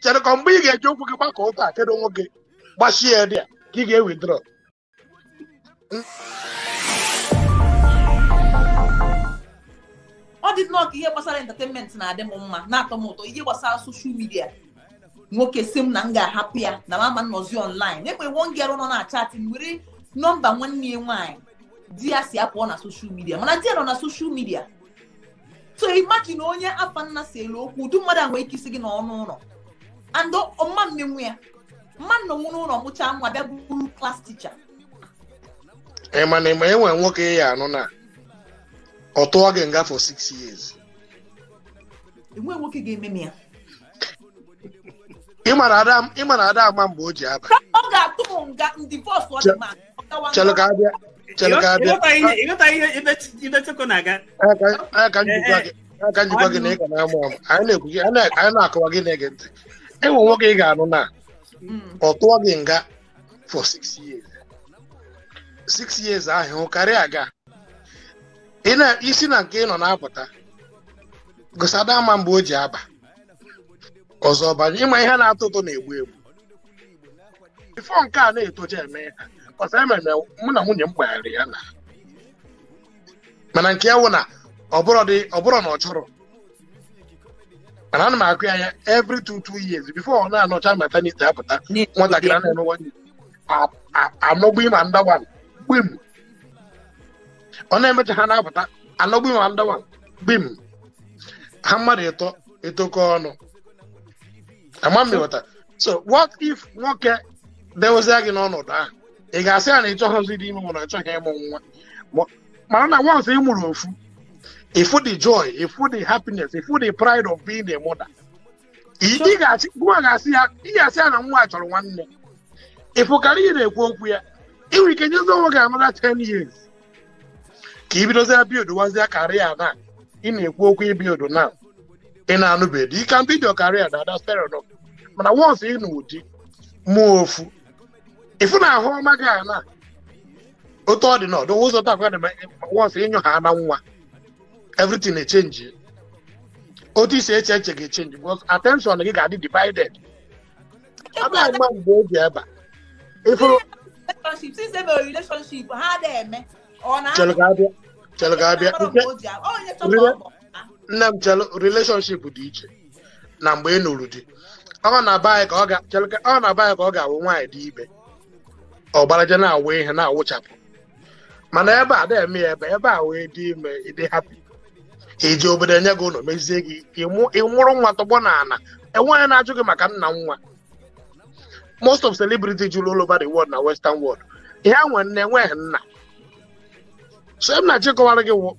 chere ka mgbe ị ga-eji ụkwụ gị gbakọ ụka kedu nwoke gbachie ya dị a ka ị ga-ewidro ọ dị nnọọ ka ihe gbasara entertainment na-adị m mma na-atọ m ụtọ ihe gbasara soshal midia nwoke si m na m ga-ahapụ ya na mama nnọzi ọnlaịn ekwe one girl nọ na chatị m were nọmba nwanne ya nwaanyị di ya si apụọ na soshal midia mana di ya nọ na soshal midia so imagine onye afa nna si elu okwu udu mmadụ anwe ike isi gị n'ọnụ ụlọ andụ ọma mmenwu ya mma nna nwụ n'ụlọ mụchaa nwa bịa bụrụ klas ticha ịma na ịma enwere nwoke ya anọ na ọ tụọ gị nga for six years enwere nwoke ga-eme m ya ịma na ada ama mgbe o ji aba ọ ga-atụ m nga ndivọs ọ ọ gawa ịghọta ihe ibechekwa na-aga aka njikwa gị na ị ga na anyị na-akọwa gị na-ege ntị enwe nwoke ị ga-anụ na ọ tụọ gị nga for six years six years ahụ karịa aga isi na nke ị nọ na-apụta gosada ama mgbe o ji aba ọzọ banye ịma ihe na-atọ ụtọ na-egbu egbu ifo nke a na-etocha eme ya E mụ na nwunye m gbaghara ya na mana nke ya wụ na ọ bụrụ na ọ chọrọ mana ana m akụ ya anya every two two years before ọ na-anọcha maternity apụta nwatakịrị na emewa anọgbu ịma ndawa gbim ọ na-emecha ha na-apụta anọgbu ịma ndawa gbim ha mmadụ ịtọ etokọ ọnụ ama mmịghọta so what if nwoke dewezie gị n'ọnọdụ ahụ ị ga-asị ya na ị ịchọghịzi dị ime ị chọghị ịmụ nwa mana na once ị mụrụ ofu ịfụ dị joy ịfụ dị happiness ịfụ dị pride of being a mother ị ga-asị ya na nwa a chọrọ nwanne ịfụ karịa ị na-ekwu okwu ya nwere ike nyezi onwe gị anara ten years ka ị abịa biodo wazie karịa na ị na-ekwu okwu ibiodo na ị na-anụbedo ike mbido karịa na ada spero mana once ị na ụdị mụọ ofu ifu na ahụ ọma gị ala otu ọ dị n'ọdụ ụzọ takwa dị wọsụ ịnyụ ha na nwa everything echenji otu isi eche eche ga-echenji bụkọs atenshọn gị ga-adị divided abịa mgba mgbe oge ebe ifuru chelụ ga-abịa nne m chelụ relationship dị iche na mgbe ị nụrụ di ọ na-aba anyị ka ọ ga-awụ nwaanyị dị ibe ọgbaraja na-awụ ihe na-awụchapụ mana ebe a na-eme ya ebe ebe a wee dị ime ịdị hapi iji obodo enye gị ụlọ mezie gị ịmụrụ nwa tọgbọ na ana enweghị na-ajụ gị maka nna nwa most of celebrity jụrụ all over the world na western world ihe nwe nne enweghị nna so m na-achịkọwara gị wụ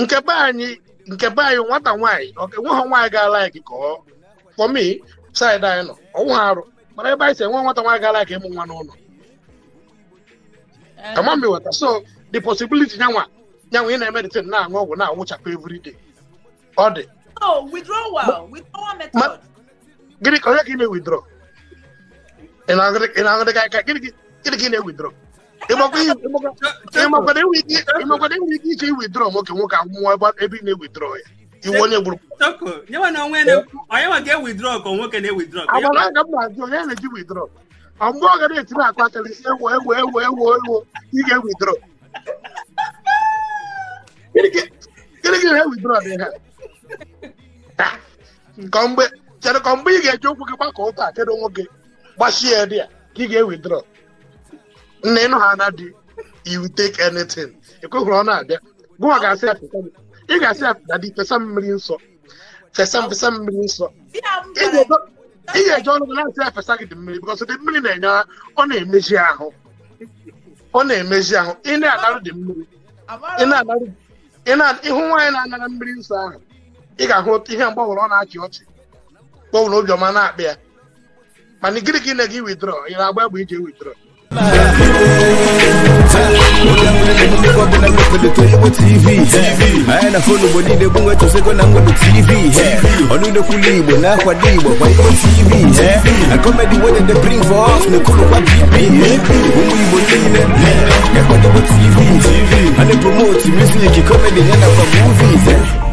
nke be anyị nke be anyị nwata nwaanyị enweghị nwaanyị gaala gị ka ọ for me anyị nọ ọnwụ ha arụ mana ebe anyị si enwe nwata nwaanyị gaala ka ịmụ nwa n'ụlọ Eh. Come on, me water. so the possibility nyanwa nyanwa yẹn na ẹmẹ de ten na anwa wo na awo every all day. oh withdrawal withdrawal method. gịnị onye ka ị na-ewithdraw ị na-aṅụrị ka gịnị ka ị na-ewithdraw ịmakwado enwe ike ike iwidrọ nwoke nwoke akwụkwọ ebe ị na-ewidrọ ya iwu onye gburu onye nwa ga-ewidrọ ka nwoke na-ewidrọ agba na-aga m na-ajụ onye na-eji widrọ ọ mgbe ọ ga na-etinye akụ akara isi ewo ewo ewo ewo ewo ị ga-ewidro gịnị gị na-ewidro dị ha mgbe chere mgbe ị ga-eji okwu gị gbakọ ụka kedu nwoke gbachie ya dị ya ka ị ga-ewidro nna ịnụ ha na dị you take anything ekweghị ọ na-abịa gụwa ga-asị ya ị ga-asị ya na dị fesa mmiri nsọ fesa fesa mmiri nsọ ihe ga-eje ọnụ na-asị afesa gị dị mmiri bikọs dị mmiri na-enye ọ na-emezi ahụ ọ na-emezi ahụ ị na-anarụ dị mmiri ịhụ nwaanyị na-anara mmiri nsọ ahụ ị ga-ahụ ihe mgbanwere ọ na-achị ọchị gbanwere obiọma na-akpị ya mana gịnị ka na-ege widrọ ị na-agba egbe ije widrọ anyị na fon obodo ide gbanwe chọsego na mgbede tv I olude kulibwe nahwadiwe to tv eh? akomedi that they bring for us nekulu kwa bp eh? umuyibonile ngakwadebo eh? tv anepromoti music comedy of the movies